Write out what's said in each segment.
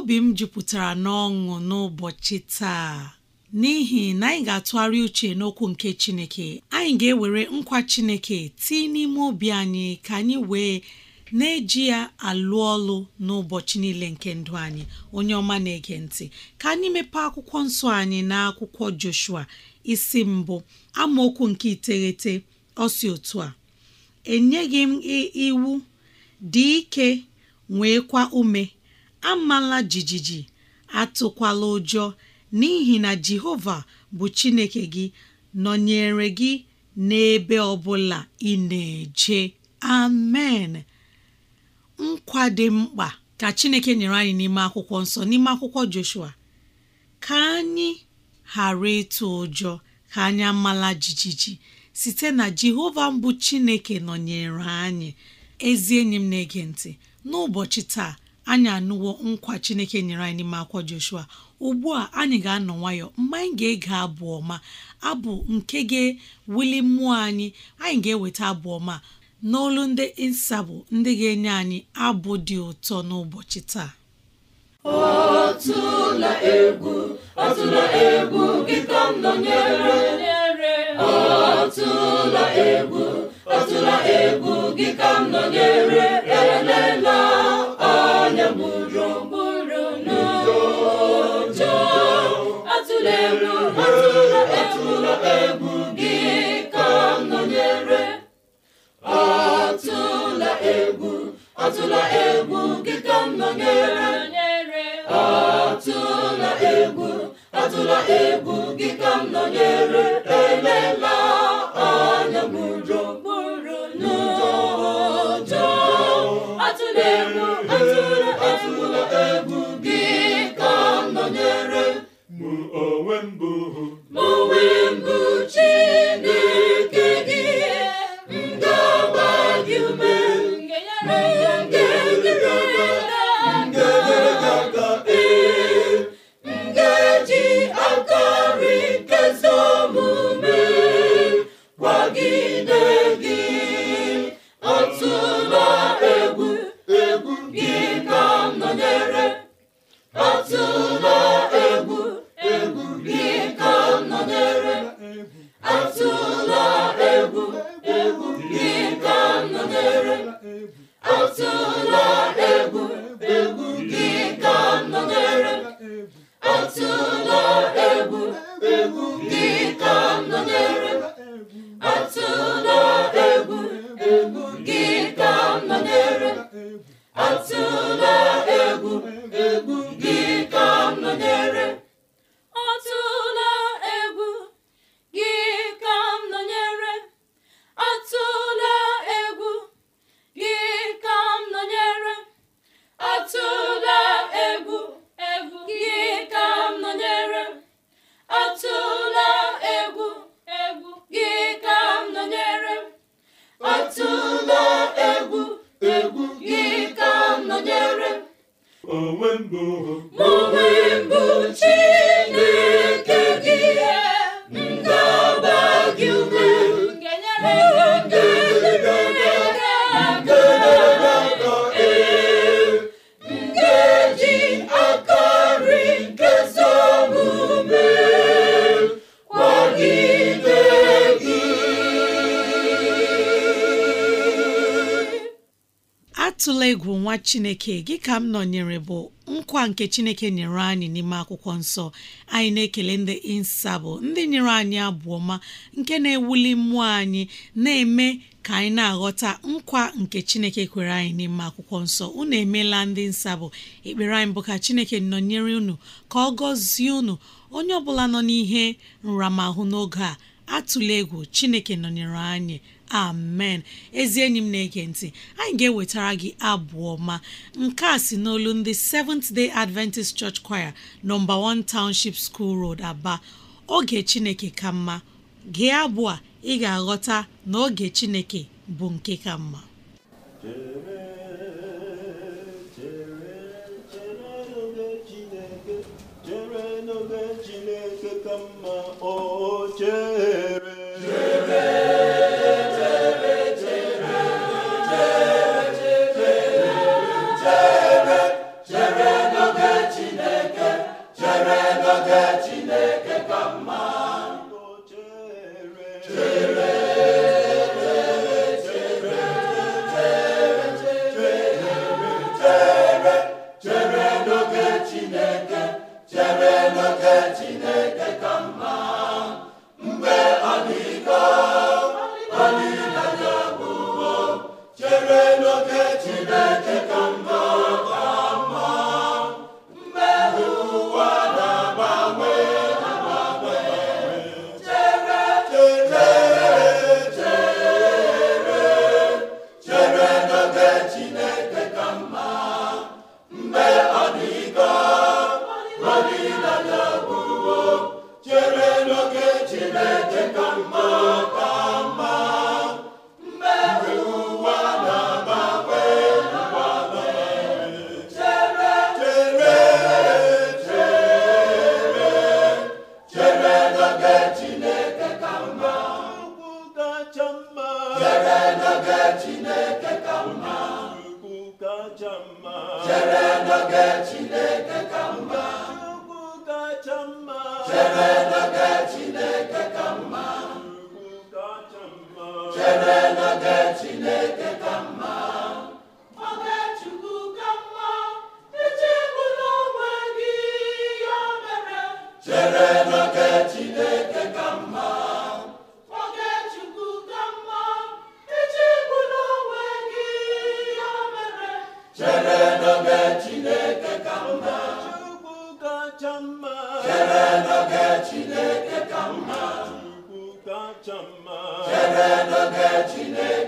obi m jupụtara n'ọṅụ n'ụbọchị taa n'ihi na anyị ga-atụgharị uche n'okwu nke Chineke anyị ga-ewere nkwa Chineke tii n'ime obi anyị ka anyị wee na-eji ya alụ ọlụ n'ụbọchị niile nke ndụ anyị onye ọma na-ege ntị ka anyị mepee akwụkwọ nsọ anyị na akwụkwọ Joshua isi mbụ amaokwu nke iteghete ọsi otu a enyeghị m iwu dị ike kwa ume amala jijiji atụkwala ụjọ n'ihi na Jehova bụ Chineke gị nọnyere gị n'ebe ọbụla ị na-eje amen nkwa mkpa ka Chineke nyere anyị n'ime akwụkwọ nsọ n'ime akwụkwọ Joshua ka anyị ghara ịtụ ụjọ ka anyị amala jijiji site na Jehova mbụ Chineke nọnyere anyị ezi enyi m na-ege ntị n'ụbọchị taa anyị anụwo nkwa chineke nyere anyị n'ime akwọ joshua ugbu a anyị ga-anọ nwayọ mgbe anyị ga-ege abụ ọma abụ nke ga-ewuli mmụọ anyị anyị ga-eweta abụ ọma n'olu ndị nsabụ ndị ga-enye anyị abụ dị ụtọ n'ụbọchị taa atụla egwu gị ka nọnyere atụla egwu atụla egwu gị ka nọnyere atụla egwu atụla egwu gị ka nọnyere elela anya m ụjọ n'ụjọ atụla egwu gị ka nọnyere mụ onwe mbụ onwe mgbuchi chineke gị ka m nọnyere bụ nkwa nke chineke nyere anyị n'ime akwụkwọ nsọ anyị na-ekele ndị insabụ ndị nyere anyị abụọ nke na-ewuli mmụọ anyị na-eme ka anyị na-aghọta nkwa nke chineke kwere anyị n'ime akwụkwọ nsọ unu emeela ndị nsabụ ekpere anyị bụ ka chineke nọnyere unu ka ọ gọzie unu onye ọ bụla nọ n'ihe nramahụ n'oge a atụla egwu chineke nọnyere anyị amen ezi enyi m na-ege ntị anyị ga-ewetara gị abụọ ma nke a si n'olu ndị Seventh Day Adventist Church Choir nọmba 1 Township School Road Aba oge Chineke ka mma gị abụ ị ga-aghọta na oge Chineke bụ nke ka mma Chineke ka mma mma chere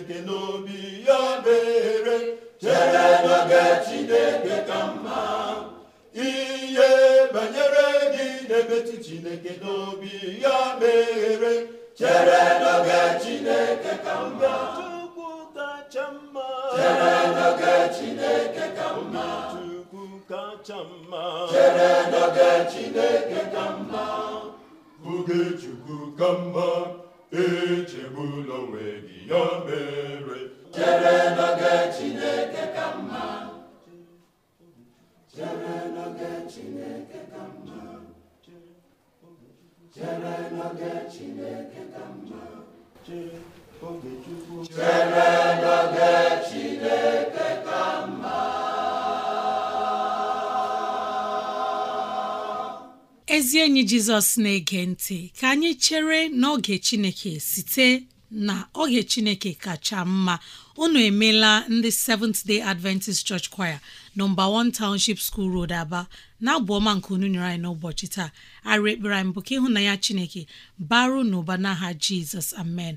Chineke n'obi ya mere chere n'oge Chineke ka mma ihe banyere gị na-emetụ Chineke n'obi ya mere chere n'oge Chineke ka mma chere n'oge Chineke ka mma chere n'oge Chineke ka mma oge Chukwu ka mma echegbula onwe gị ya mere chere n'oge Chineke ka chere n'oge ka mma ezi enyi jizọs na-ege ntị ka anyị chere n'oge chineke site na oge chineke kacha mma unu emela ndị Seventh Day Adventist Church Choir nọmba 1 Township School Road Aba na-abụ nke unu nyere anyị n'ụbọchị taa arị ekpere anyị bụ ka ịhụnanya chineke baru n'ụba n'aha Jizọs amen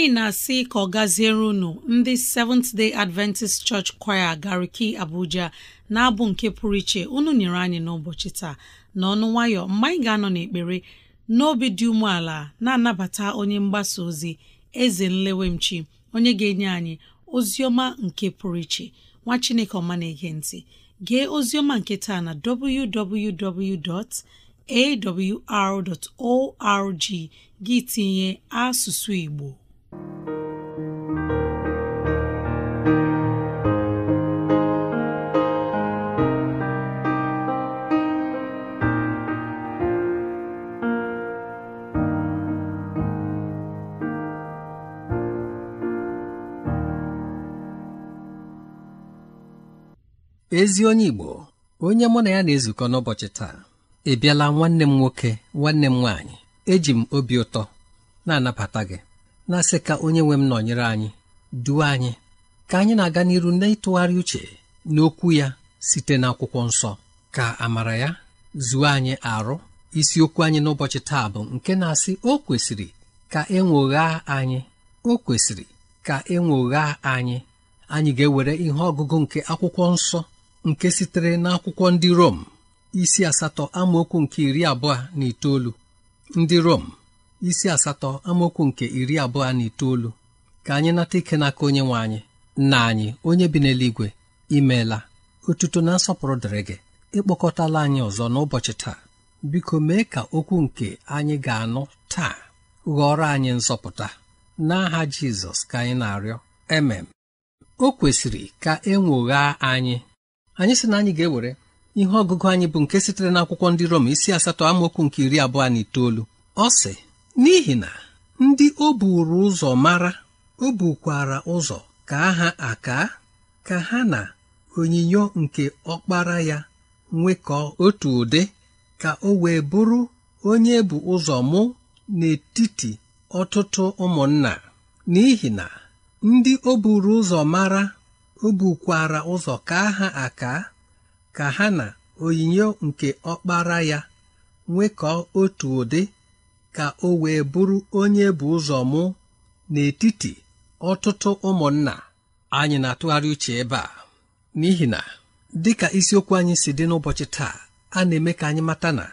anyị na-asị ka ọ gaziere unu ndị Seventh Day Adventist Church Choir Gariki Abuja na-abụ nke pụrụ iche unu nyere anyị n'ụbọchị taa n'ọnụ nwayọ mgbe anyị ga-anọ n'ekpere n'obi dị umeala na-anabata onye mgbasa ozi eze nlewemchi onye ga-enye anyị ozi ọma nke pụrụ iche nwa Chineke ọma na-ege gee ozi ọma nke taa na www.awr.org gị tinye asụsụ Igbo ezi onye Igbo onye mụ na ya na-ezukọ n'ụbọchị taa ebiala nwanne m nwoke nwanne m nwaanyị eji m obi ụtọ na-anabata gị na-asị ka onye nwe m nọnyere anyị duo anyị ka anyị na-aga n'iru n'ịtụgharị uche n'okwu ya site n'akwụkwọ nsọ ka amara ya zuo anyị arụ isiokwu anyị n'ụbọchị taa bụ nke na-asị o kwesịrị ka enwoghaa anyị o kwesịrị ka enwoghaa anyị anyị ga-ewere ihe ọgụgụ nke akwụkwọ nsọ nke sitere n'akwụkwọ ndị Rom isi asatọ amaokwu nke iri abụọ na itoolu ndị Rom isi asatọ amaokwu nke iri abụọ na itoolu ka anyị nata ike n'aka onye nwe anyị nna anyị onye bi n'eluigwe imeela otuto na nsọpụrụ dịrị gị ịkpọkọtala anyị ọzọ n'ụbọchị taa biko mee ka okwu nke anyị ga-anụ taa ghọrọ anyị nzọpụta n'aha Jizọs ka anyị na-arịọ emem o kwesịrị ka e ụgha anyị anyị sị na anyị ga-ewere ihe ọgụgụ anyị bụ nke sitere n'akwụkwọ ndị Rom isi asatọ amaokwu nke iri abụọ na itoolu ọ sị n'ihi na ndị o buru ụzọ mara o bukwara ụzọ ka ha aka ka ha na onyinyo nke ọkpara ya nwekọọ otu ụdị ka o wee bụrụ onye bụ ụzọ mụ n'etiti ọtụtụ ụmụnna n'ihi na ndị o buru ụzọ mara o bukwara ụzọ ka ha aka ka ha na onyinyo nke ọkpara ya nwekọọ otu ụdị ka o wee bụrụ onye bụ ụzọ mụ n'etiti ọtụtụ ụmụnna anyị na-atụgharị uche ebe a n'ihi na dịka isiokwu anyị si dị n'ụbọchị taa a na-eme ka anyị mata na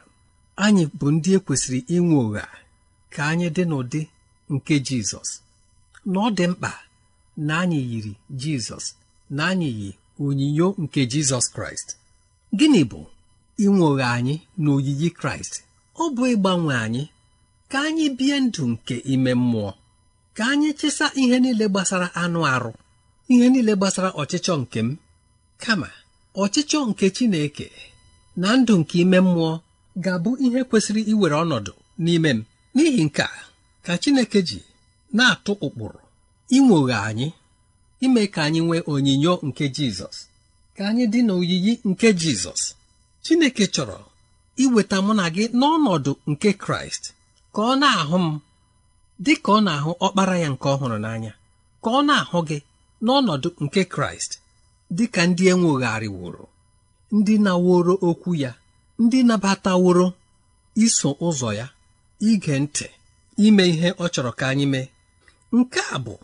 anyị bụ ndị e kwesịrị inwe ụgha ka anyị dị n'ụdị nke Jizọs na ọ dị mkpa na anyị yiri Jizọs na anyị yi onyinyo nke Jizọs Kraịst gịnị bụ inwe ụgha anyị na oyiyi Kraịst ọ bụ ịgbanwe anyị ka anyị bie ndụ nke ime mmụọ ka anyị chesa ihe niile gbasara anụ arụ ihe niile gbasara ọchịchọ nke m kama ọchịchọ nke Chineke na ndụ nke ime mmụọ ga-abụ ihe kwesịrị iwere ọnọdụ n'ime m n'ihi nke a ka Chineke ji na-atụ ụkpụrụ inwoghe anyị ime ka anyị nwee onyinyo nke Jizọs ka anyị dị n'oyiyi nke Jizọs Chineke chọrọ iweta mụ na gị n'ọnọdụ nke Kraịst ka ọ na-ahụ m dị ka ọ na-ahụ ọkpara ya nke ọhụrụ n'anya ka ọ na-ahụ gị n'ọnọdụ nke Kraịst dị ka ndị wụrụ, ndị naworo okwu ya ndị nabataworo iso ụzọ ya ige ntị ime ihe ọ chọrọ ka anyị mee nke a bụ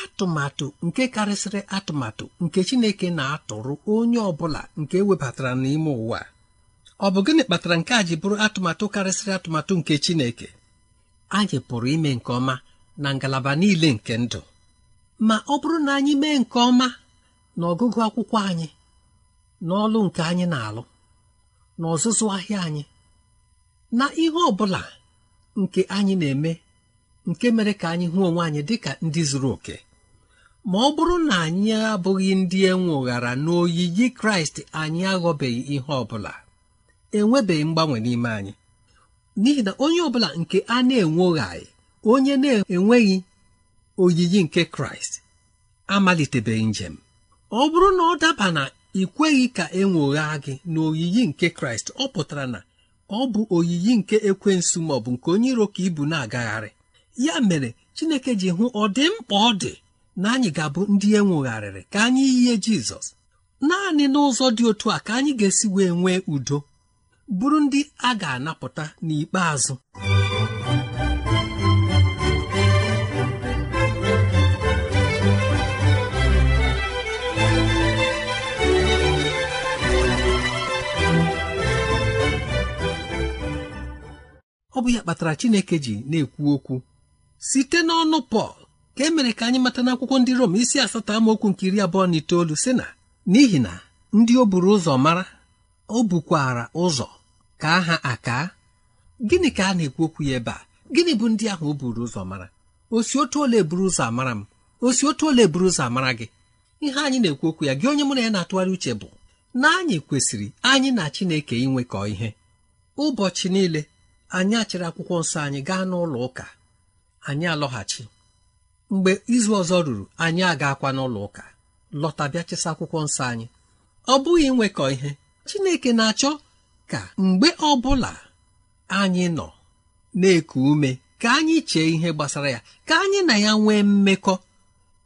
atụmatụ nke karịsịrị atụmatụ nke Chineke na-atụrụ onye ọ bụla nke e webatara n'ime ụwa ọ bụ gịnị kpatara nke a ji bụrụ atụmatụ karịsịrị atụmatụ nke Chineke anyị pụrụ ime nke ọma na ngalaba niile nke ndụ ma ọ bụrụ na anyị mee nke ọma na ọgụgụ akwụkwọ anyị na ọlụ nke anyị na-alụ na ọzụzụ ahịa anyị na ihe ọ bụla nke anyị na-eme nke mere ka anyị hụ onwe anyị dịka ndị zuru oke ma ọ bụrụ na anyị abụghị ndị enwe na n'oyiyi Kraịst anyị aghọbeghị ihe ọ bụla enwebeghị mgbanwe n'ime anyị n'ihi na onye ọbụla nke a na-enwoghaghị onye na-enweghị oyiyi nke kraịst amalitebeghị njem ọ bụrụ na ọ daba na ị kweghị ka e nwoghaa gị na oyiyi nke kraịst ọ pụtara na ọ bụ oyiyi nke ekwensu ma ọ bụ nke onye iro ka ibu na-agagharị ya mere chineke ji hụ ọ dị mkpa ọ dị na anyị ga-abụ ndị enwogharịrị ka anyị yie jizọs naanị n'ụzọ dị otu a ka anyị ga-esi wee nwee udo bụrụ ndị a ga-anapụta n'ikpeazụ ọ bụ ya kpatara Chineke ji na-ekwu okwu site n'ọnụ Pọl ka e mere ka anyị mata n'akwụkwọ ndị Rom isi asatọ amaokwu nke iri abụọ na itoolu sị na n'ihi na ndị o buru ụzọ mara o bukwara ụzọ ka aha aka gịnị ka a na-ekwu okwu ya ebe a gịnị bụ ndị ahụ o buru ụzọ mara osi otu ole buru ụzọ amara m osi otu ole buru ụzọ amara gị ihe anyị na-ekwu okwu ya gị onye mụ na ya na-atụgharị uche bụ na anyị kwesịrị anyị na Chineke inwekọ ihe ụbọchị niile anyị achịrị akwụkwọ nsọ anyị gaa n'ụlọ ụka anyị alọghachi mgbe izu ọzọ ruru anyị agakwa n'ụlọ ụka lọta bịa chesa akwụkwọ nsọ anyị ọ bụghị inwekọ ihe Chineke na-achọ ka mgbe ọbụla anyị nọ na-eku ume ka anyị chee ihe gbasara ya ka anyị na ya nwee mmekọ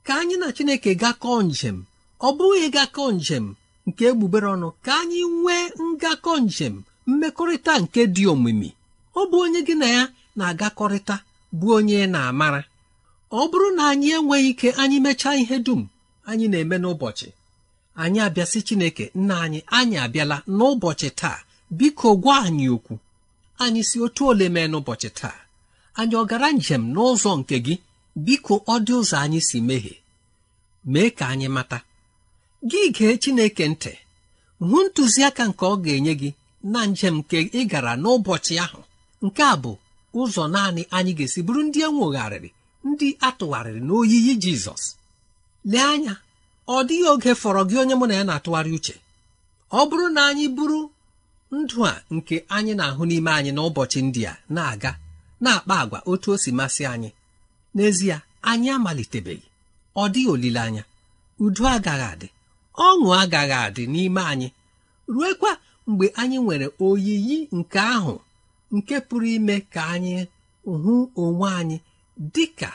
ka anyị na Chineke gakọọ njem ọ bụghị gakọọ njem nke egbugbere ọnụ ka anyị nwee ngakọ njem mmekọrịta nke dị omimi ọ bụ onye gị na ya na-agakọrịta bụ onye na-amara ọ bụrụ na anyị enweghị ike anyị mechaa ihe dum anyị na-eme n'ụbọchị anyị abịasị Chineke nna anyị anyị abịala n'ụbọchị taa biko gwa anyị okwu anyị si otu ole mee n'ụbọchị taa anyị ọ gara njem n'ụzọ nke gị biko ọ dị ụzọ anyị si mehie mee ka anyị mata gị gee Chineke ntị hụ ntụziaka nke ọ ga-enye gị na njem nke ị gara n'ụbọchị ahụ nke a bụ ụzọ naanị anyị ga-esi bụrụ ndị enwogharịrị ndị atụgharịrị n'oyiyi Jizọs lee anya ọ dịghị oge fọrọ gị onye mụ na ya na-atụgharị uche ọ bụrụ na anyị bụrụ ndụ a nke anyị na-ahụ n'ime anyị n'ụbọchị ndị a na-aga na-akpa agwa otu o si masị anyị n'ezie anyị amalitebeghị ọ dịghị olileanya udo agaghị adị ọṅụ agaghị adị n'ime anyị ruekwa mgbe anyị nwere oyiyi nke ahụ nke pụrụ ime ka anyị hụ onwe anyị dị ka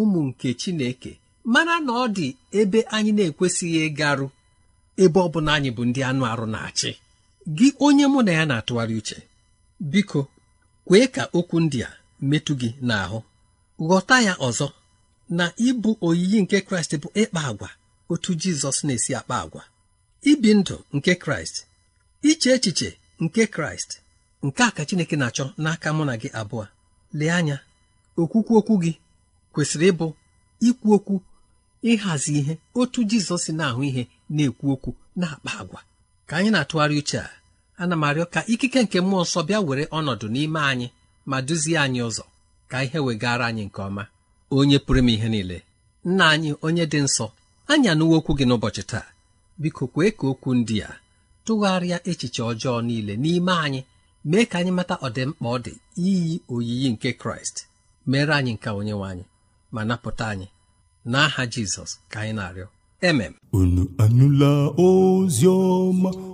ụmụ nke Chineke mana na ọ dị ebe anyị na-ekwesịghị ịgarụ ebe ọ bụla anyị bụ ndị anụ arụ na-achị gị onye mụ na ya na-atụgharị uche biko kwee ka okwu ndị a metụ gị n'ahụ ghọta ya ọzọ na ịbụ oyiyi nke kraịst bụ ịkpa agwa otu jizọs na-esi akpa agwa ibi ndụ nke kraịst iche echiche nke kraịst nke a ka chineke na-achọ n'aka mụ na gị abụọ lee anya okwukwu okwu gị kwesịrị ịbụ ikwu okwu ịhazi ihe otu jizọs na-ahụ ihe na-ekwu okwu na-akpa agwa ka anyị na-atụgharị uche a ana m arịọ ka ikike nke mmụọ nsọ bịa were ọnọdụ n'ime anyị ma duzie anyị ụzọ ka ihe wegara anyị nke ọma onye pụrụ m ihe niile nna anyị onye dị nsọ anyị anụwo okwu gị n'ụbọchị taa biko kwee ka okwu ndị a tụgharịa echiche ọjọọ niile n'ime anyị mee ka anyị mata ọdịmkpa ọ dị iyi oyiyi nke kraịst mere anyị nke onyenwe anyị ma napụta anyị n'aha jizọs ka anyị na-arịọ emem unu anụla ozi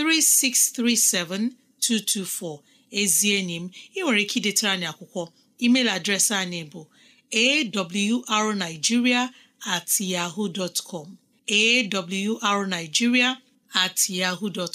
3637224 ezi enyi m ị nwere ike idetara anyị akwụkwọ email adreesị anyị bụ awrnigeria at yahoo dot com awrnigeria at yahoo dot